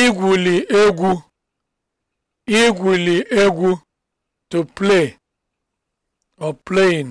igwuli egwu igwuli egwu to play or playing